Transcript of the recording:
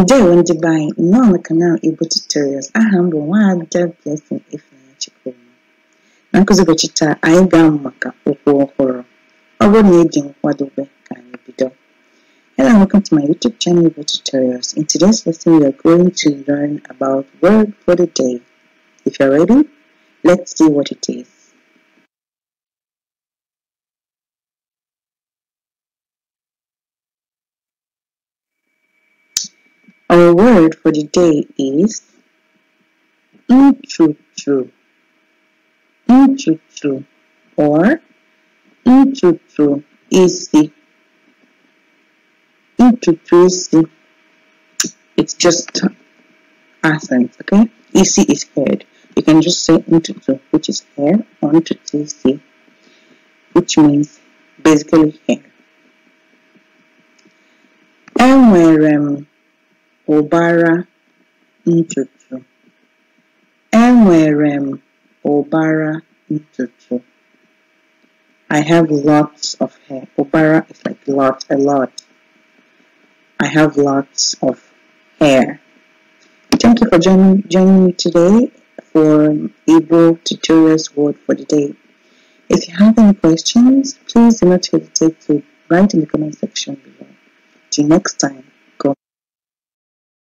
Ndewo ah, ndị be anyị nnọọ na kanal Igbo Tutorials aha m bụ Nwaada Blessing Ifeanyi Chukwuma na nkụzi ụbọchị taa anyị ga-amụ maka okwu ọhụrụ ọ bụrụ na ị dị nkwadobe ka anyị bido Hello and welcome to my YouTube channel Igbo Tutorials in today's lesson we are going to learn about word for the day if you're ready let's see what it is Our word for the day is intutu, intutu, or intutu Nchuchu isi. Nchuchu isi. It's just accent, okay? Isi is head. You can just say intutu, which is hair, or intutu Nchuchu which means basically hair. Enwerem ụbara ntutu enwere m ụbara ntutu I have lots of hair ụbara is like lot a lot I have lots of hair thank you for joining joining me today for Igbo tutorials word for the day if you have any questions please do not hesitate to write in the comment section below till next time